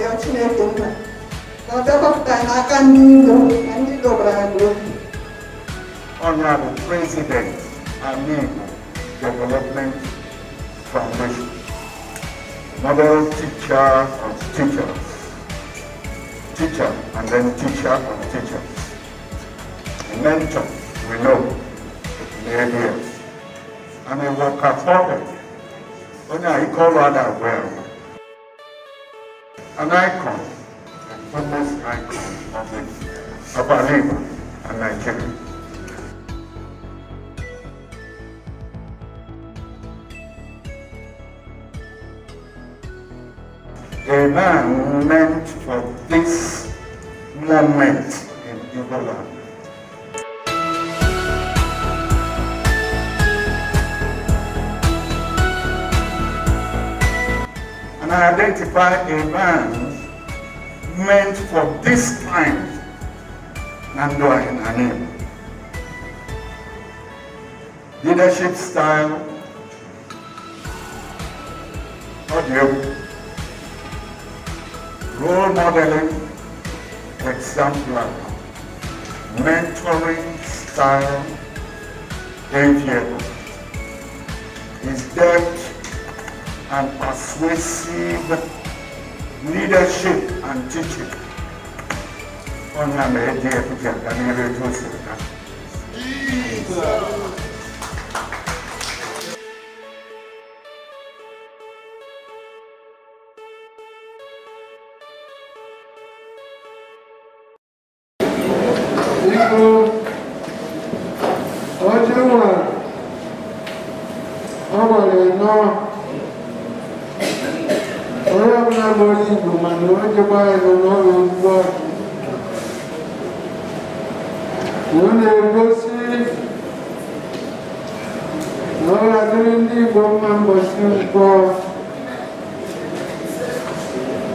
ya Chineke Honorable President Amigo Development Foundation, Model Teacher and Teachers, Teacher and then Teacher and Teachers, mentor we know, Mary and a worker forward, onye a ike ọrụ well an icon, a famous icon of the upper river and Nigeria. A man meant for this moment in Yoruba identify events meant for this time and in her name. Leadership style, audio, role modeling, exemplar, mentoring style, enviable. Is that and persuasive leadership and teaching. Ona amerejea picha kamili tusi. Jesus. Ọjọ́ wa, ọmọ rẹ̀ chiamare con non un po'. Non è così. Allora quindi formiamo un po'.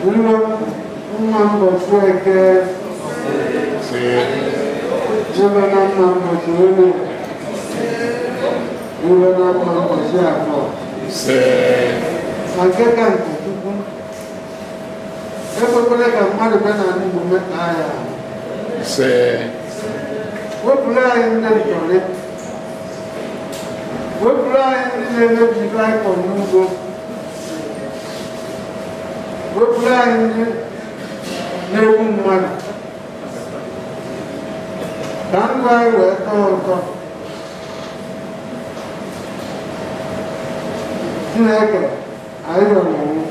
Un mambo cioè che... Sì. Giovane mambo cioè. Giovane mambo cioè. Sì. Ma che canto? ekwekwana ka mmadụ bịa na ndị omume agha ise wepụrụ anyị ndị ntọrị wepụrụ anyị ndị na-emebi baịkọl n'ugbo wepụrụ anyị ndị na-egbu mmadụ ka ndụ anyị wee tọọ ụtọ chineke anyị rọrọ onwe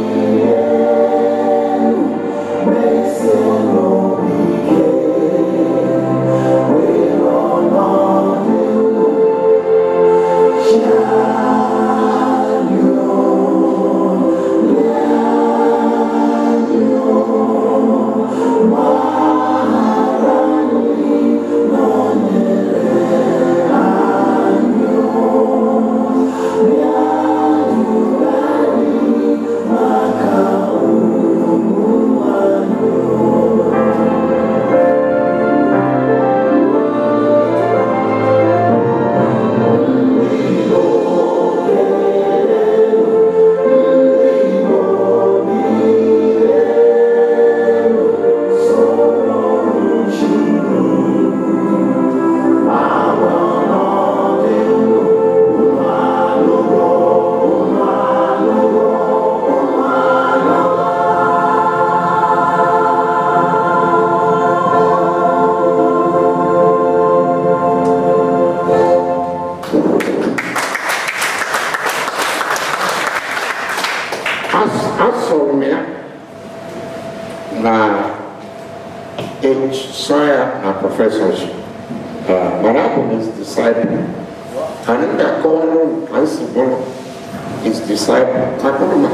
disciple akụrụma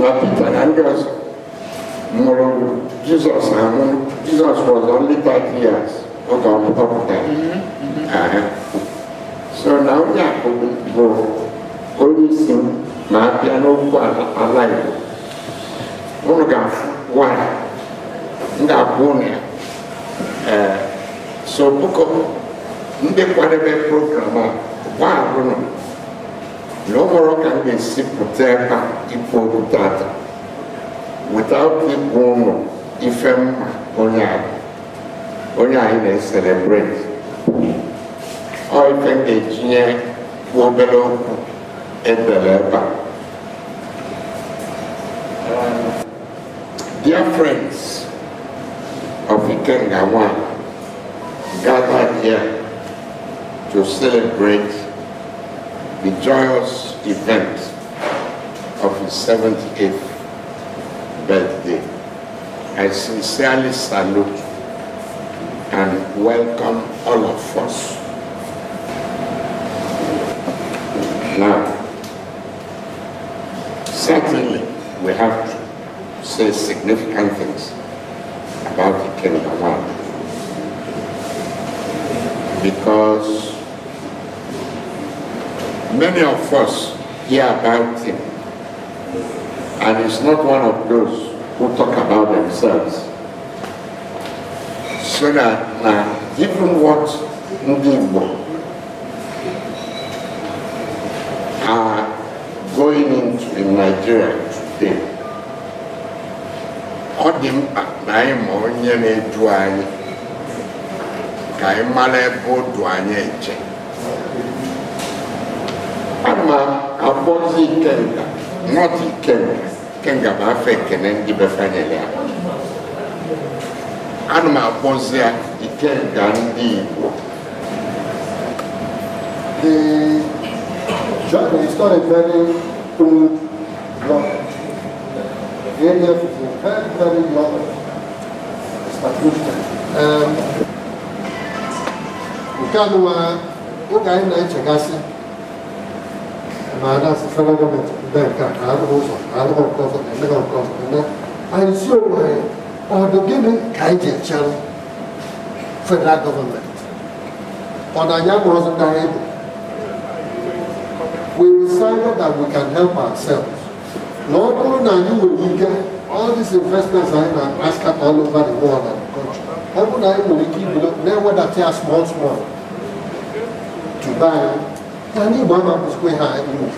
na peter na ndị ọzọ mụrụ Jizọs anwụ Jizọs was only 30 years oge ọpụta ahịa so na onye akụ bụ onye isi ma abịa n'okwu ala Igbo unu ga-afụ nwanyị ndị abụọ na ya so bụkọ ndị kwadebe program ah. a gwa L'opera can be protetta ipovedata. Without the buono, ifem onye onye anyị na-eselebrate. Ọ I ga-etinye obere okwu edere ebe a. Dear friends of Ikenga One, gathered here to celebrate the joyous event of his 78th birthday. I sincerely salute and welcome all of us. Now, certainly we have to say significant things about the kingdom because many of us hear about him. And he's not one of those who talk about themselves. So that uh, even what ndị Igbo are going into in Nigeria today, ọ dị mkpa na anyị ma onye na-edu anyị ka anyị ebe o du anyị eche. ana akpọzi ikenga nọti ikenga ikenga bụ afọ ekene ndị befanyere ya ana m akpọzi ya ikenga ndị Igbo um, Nke a nụwa uh, oge anyị na-echegasị 만화 스스로 보면 그러니까 나도 없어 나도 없어서 내가 없어서 근데 안 쉬워해 어떻게는 가이제 참 federal government ọ̀nàyà wasn't that able we decided that we can help ourselves Lord, kúrò náà yíwò yìí gẹ́ all these investments are in Alaska all over the world and the country ọ̀bùn náà yíwò yìí kí ìbílẹ̀ náà wẹ́dà tí a small small Dubai anyone of us we had moved.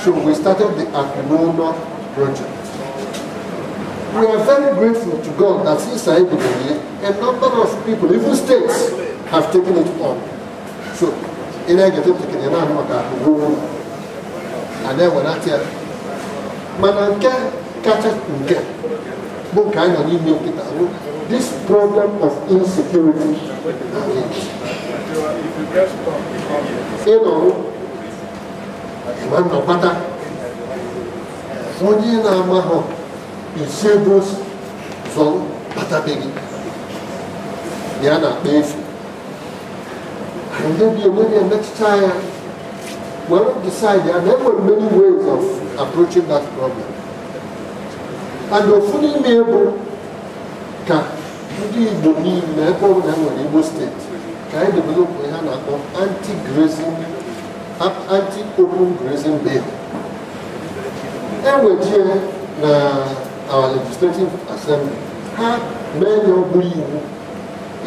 So we started the Akunona project. We are very grateful to God that since I began, a number of people, even states, have taken it on. So, in I get up to Kenya, I'm like, and then when I tell, man, I can't catch it This problem of insecurity sínú ìmọ̀nà pátá onye na-ama hụ esebo zọ kpatabeghị ya na-akpa efu ndị bi onwe na-emetụta ya were decide there na many ways of approaching that problem and ofu n'ime bụ ka ndị Igbo niile ebe ọ bụla enwere Igbo ka anyị developụ ihe a na-akpọ anti-grazing anti-open grazing bill ewejie na our legislative assembly ha mee ya ọ bụrụ iwu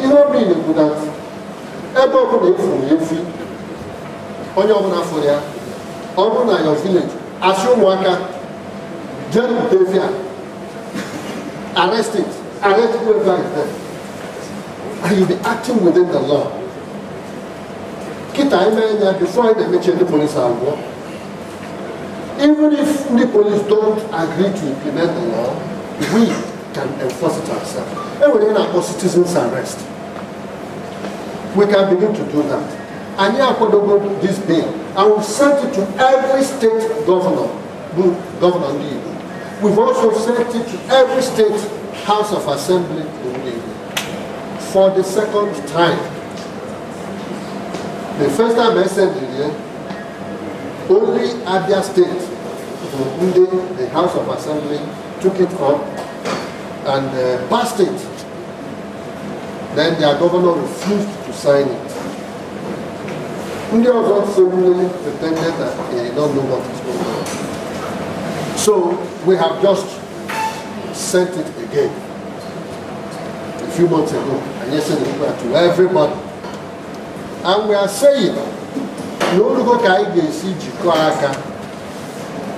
ihe ọ bụrụ bụ na ebe ọbụla efuru efi onye ọbụla fụrụ ya ọ bụrụ na your village asị ụmụaka jee bute efi a and you be acting within the law kita ɛmɛ ya before ɛna mɛkyɛ ne police agorɔ even if ne police don't agree to implement the law we can enforce it ourselves ɛwɛrɛ na akɔ citizens arrest we can begin to do that anyi akɔdogo this bill i will send it to every state governor governor ndi igbo we also sent it to every state house of assembly in ndi for the second time. The first time I said here, only Abia State, including the House of Assembly, took it up and uh, passed it. Then their governor refused to sign it. Ndị ọzọ suddenly pretended that they did not know what is going on. So we have just sent it again a few months ago, and yesterday we to everybody. and we na olugo ka anyị ga-esi jikọọ aka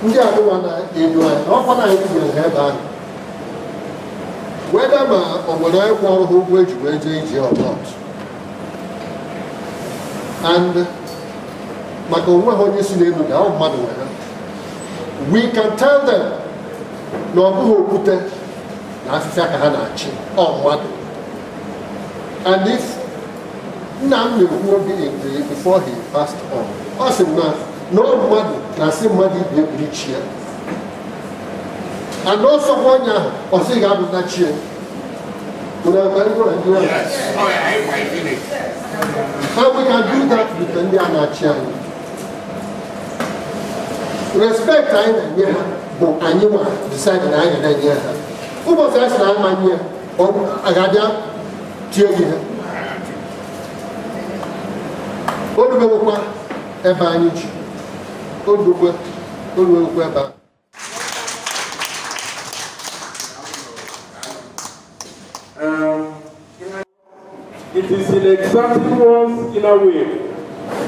ndị adịwa na-elu anyị na ọkwa na anyị gwere ha ebe ahụ weda ma ọ nwere anyị ọrụ ha ụgwọ eji wee jee ije ọbọt and maka onwe ha onye si n'elu na ahụ mmadụ nwere we can tell them na ọ bụghị okwute na afịfịa ka ha na-achị ọ mmadụ and if Nnamdi Nkwuobi Egbue before he passed on ọ sị na na ọ mmadụ na-asị mmadụ ibe egburu chi ya ana ọsọkwa onye ahụ ọsị ga-abụta chi ya How we can do ndị a na-achị anyị respect anyị na-enye ha bụ anyị nwa decide na anyị na-enye ha ụbọchị a sị na amanye ya ọ ga-abịa tie gị ha odubewokwa ebe anyị ji odugwe oruwekwa ebe a It is in exacting one's inner way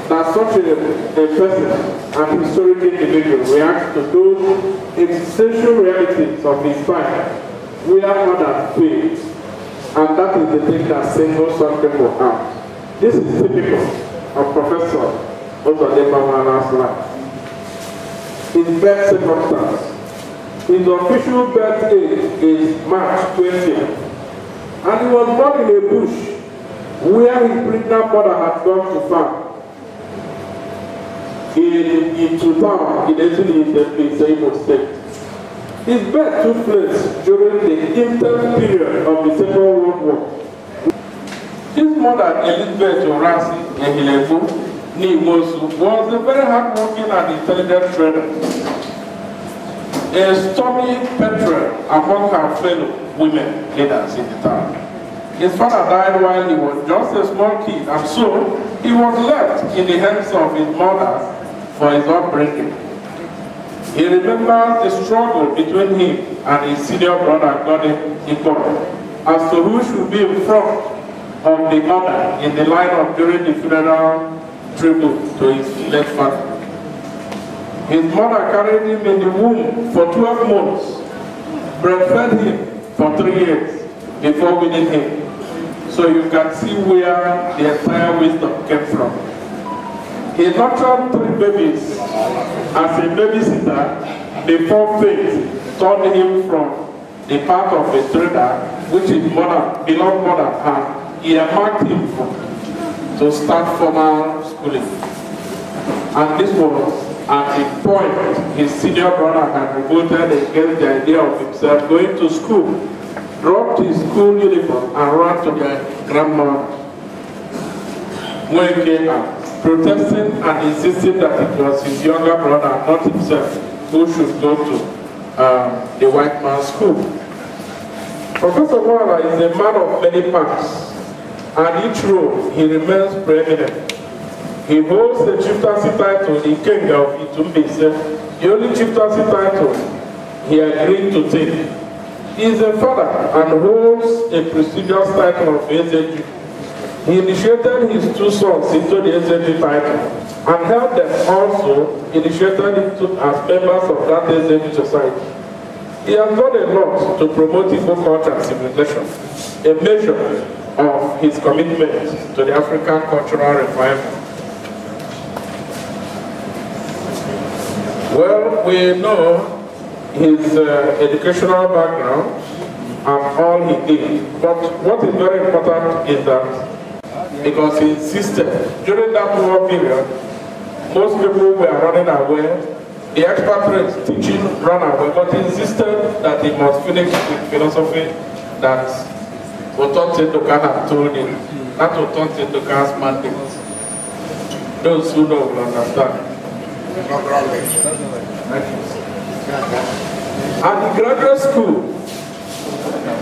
that such a, a person, an historic individual, reacts to those existential realities of his time, We whether hard and faith, and that is the thing that singles some people out. This is typical of Professor Otadeba Mana's life. His birth circumstance, his official birth date is March 20th, and he was born in a bush where his pregnant mother had gone to farm. In, in Tutam, in the in Imo State. His birth took place during the intense period of the Second World War. His mother, Elizabeth Orasi Ehilefo Nimosu, was a very hardworking and intelligent trader. A stormy petrel among her fellow women leaders in the town. His father died while he was just a small kid, and so he was left in the hands of his mother for his upbringing. He remembers the struggle between him and his senior brother, Gordon Ikoro, as to who should be in front of the mother in the line of during the funeral tribute to his late father. His mother carried him in the womb for 12 months, breastfed him for three years before winning him. So you can see where the entire wisdom came from. He nurtured three babies as a babysitter before fate turned him from the path of a trader which his mother, beloved mother had earmarked him to start formal schooling. And this was at a point his senior brother had revolted against the idea of himself going to school, dropped his school uniform and ran to their grandma came out, protesting and insisting that it was his younger brother, not himself, who should go to um, the white man's school. Professor Wara is a man of many parts. At each role he remains preeminent. He holds the chieftaincy title the king of Itumbese, the only chieftaincy title he agreed to take. He is a father and holds a prestigious title of Ezeju. He initiated his two sons into the Ezeju title and helped them also initiated into, as members of that Ezeju society. He has done a lot to promote Igbo culture and civilization, a measure of his commitment to the African cultural revival. Well, we know his uh, educational background and all he did, but what is very important is that because he insisted during that war period, most people were running away, the expert teaching ran away, but he insisted that he must finish with philosophy that Otonte Doka have told it. That Otonte Doka's mandate. Those who don't will understand. At the graduate school,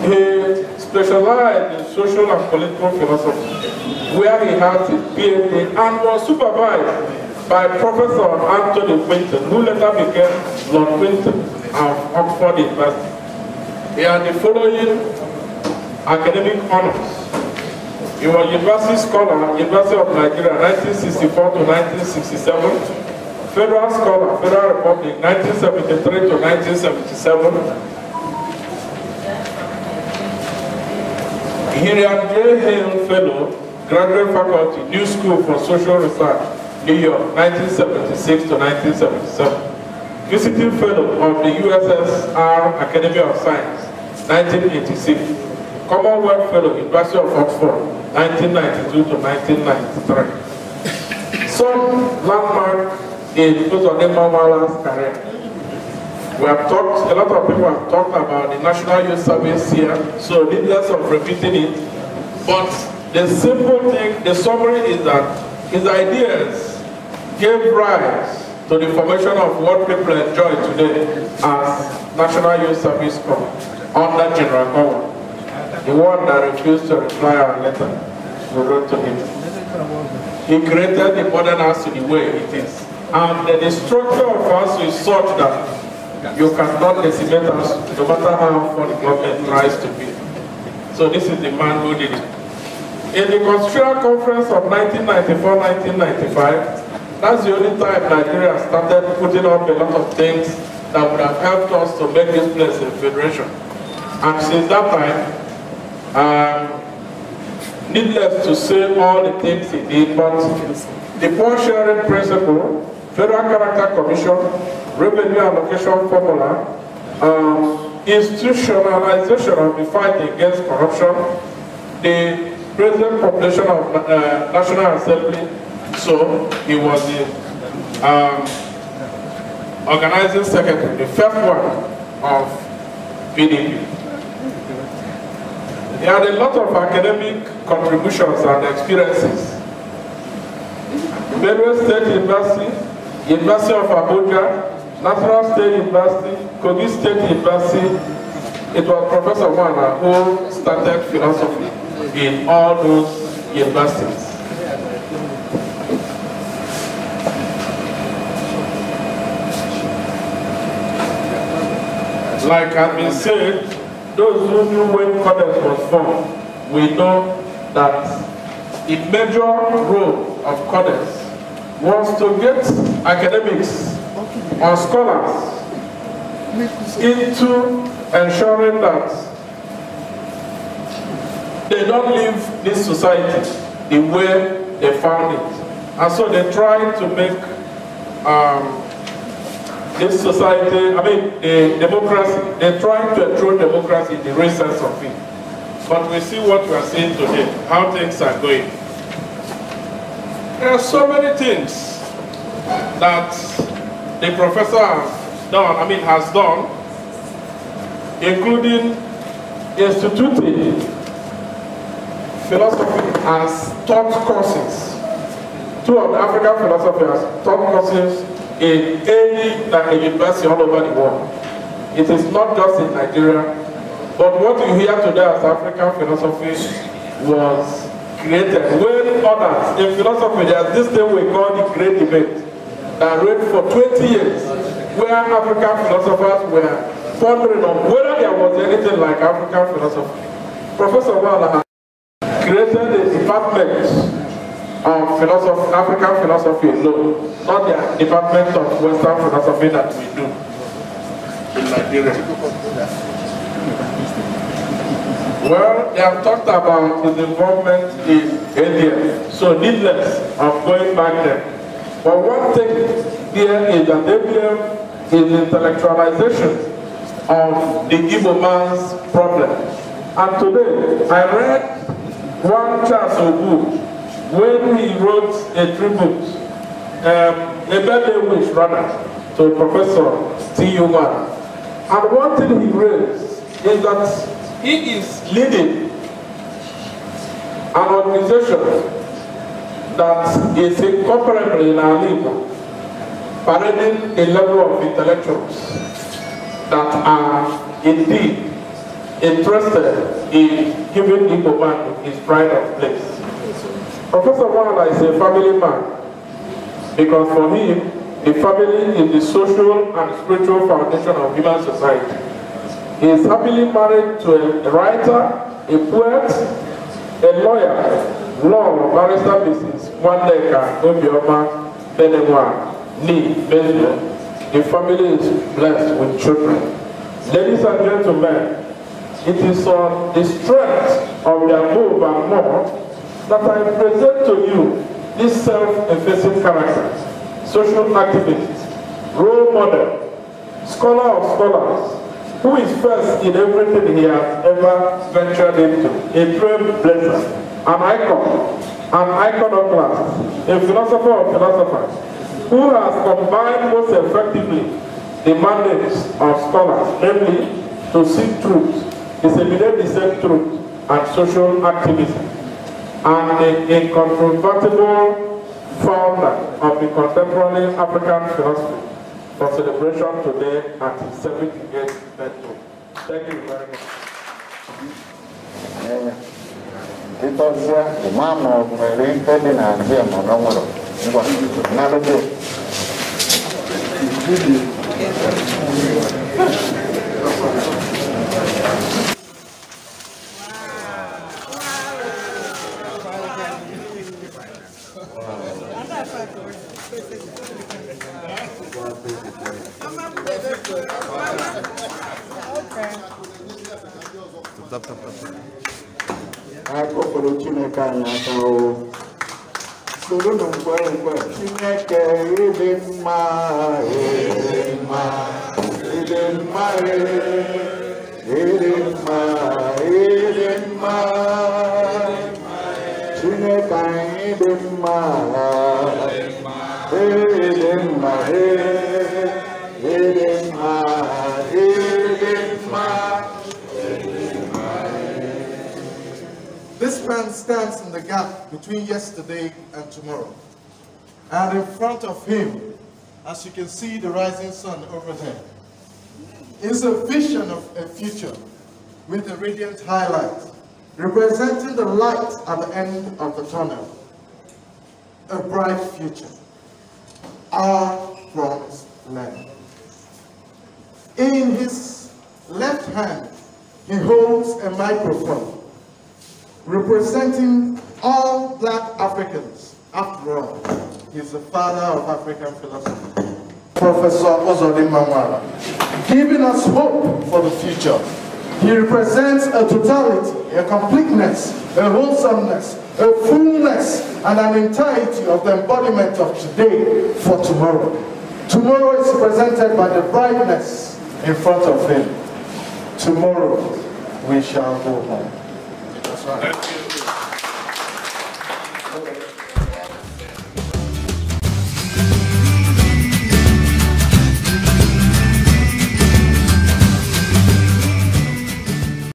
he specialized in social and political philosophy, where he had his PhD and was supervised by Professor Anthony Quinton, who later became Lord Quinton of Oxford University. He had the following academic honors. He was university scholar, University of Nigeria, 1964 to 1967. Federal Scholar, Federal Republic, 1973 to 1977. Hiriam J. Hale Fellow, Graduate Faculty, New School for Social Research, New York, 1976 to 1977. Visiting Fellow of the USSR Academy of Science, 1986. Commonwealth Fellow, University of Oxford, 1992 to 1993. Some landmark in Dr. Nemawala's career. We have talked, a lot of people have talked about the National Youth Service here, so needless of repeating it. But the simple thing, the summary is that his ideas gave rise to the formation of what people enjoy today as National Youth Service Corps under General power the one that refused to reply our letter we wrote to him. He created the modern house in the way it is. And the structure of us is such that you cannot decimate us no matter how far the government tries to be. So this is the man who did it. In the Constitutional Conference of 1994-1995, that's the only time Nigeria started putting up a lot of things that would have helped us to make this place a federation. And since that time, um, needless to say all the things he did, but the poor sharing principle, federal character commission, revenue allocation formula, um, institutionalization of the fight against corruption, the present population of uh, National Assembly, so he was the um, organizing secretary, the first one of PDP. He had a lot of academic contributions and experiences. Benue State University, University of Abuja, National State University, Kogi State University. It was Professor Wana who started philosophy in all those universities. Like I've been saying, those who knew when Codex was formed will know that a major role of Codex was to get academics or scholars into ensuring that they don't leave this society the way they found it. And so they try to make um, this society, I mean, the democracy, they're trying to throw democracy in the real sense of it. But we see what we are seeing today, how things are going. There are so many things that the professor has done, I mean, has done, including instituting philosophy as taught courses. Two of the African philosophers taught courses in any like university all over the world. It is not just in Nigeria, but what you hear today as African philosophy was created when others in philosophy there's this thing we call the great debate that ran for 20 years where African philosophers were pondering on whether there was anything like African philosophy. Professor Wala created a department philosophy, African philosophy no, not the department of Western philosophy that we do in Nigeria. Well, they have talked about his involvement in India, so needless of going back there. But one thing here is that ABM is intellectualization of the Igbo man's problem. And today, I read one of book. when he wrote a tribute, um, a birthday wish rather, to Professor Steve Human. And one thing he raised is that he is leading an organization that is incomparable in our league, parading a level of intellectuals that are indeed interested in giving Igbo man his pride of place. Professor Wanana is a family man because for him, the family is the social and spiritual foundation of human society. He is happily married to a writer, a poet, a lawyer, law barrister Mrs. Waneka Obioma Benewa Ni, Benjo. The family is blessed with children. Ladies and gentlemen, it is on the strength of their move and more that I present to you these self-effacing characters, social activists, role model, scholar of scholars, who is first in everything he has ever ventured into, a trailblazer, an icon, an iconoclast, a philosopher of philosophers, who has combined most effectively the mandates of scholars, namely to seek truth, disseminate the same truth, and social activism and the incontrovertible founder of the contemporary African philosophy for celebration today at his 78th birthday. Thank you very much. Eh, tap, tap, tap. akọkọrọ Chineke anyị aka o soronu mgbe mgbe Chineke ịdị mma ịdị mma ịdị mma ịdị man stands in the gap between yesterday and tomorrow. And in front of him, as you can see the rising sun over there, is a vision of a future with a radiant highlight, representing the light at the end of the tunnel. A bright future. Our promised land. In his left hand, he holds a microphone representing all black Africans. After all, he's the father of African philosophy. Professor Ozodin Mamwara, giving us hope for the future. He represents a totality, a completeness, a wholesomeness, a fullness, and an entirety of the embodiment of today for tomorrow. Tomorrow is presented by the brightness in front of him. Tomorrow we shall go home. That's right.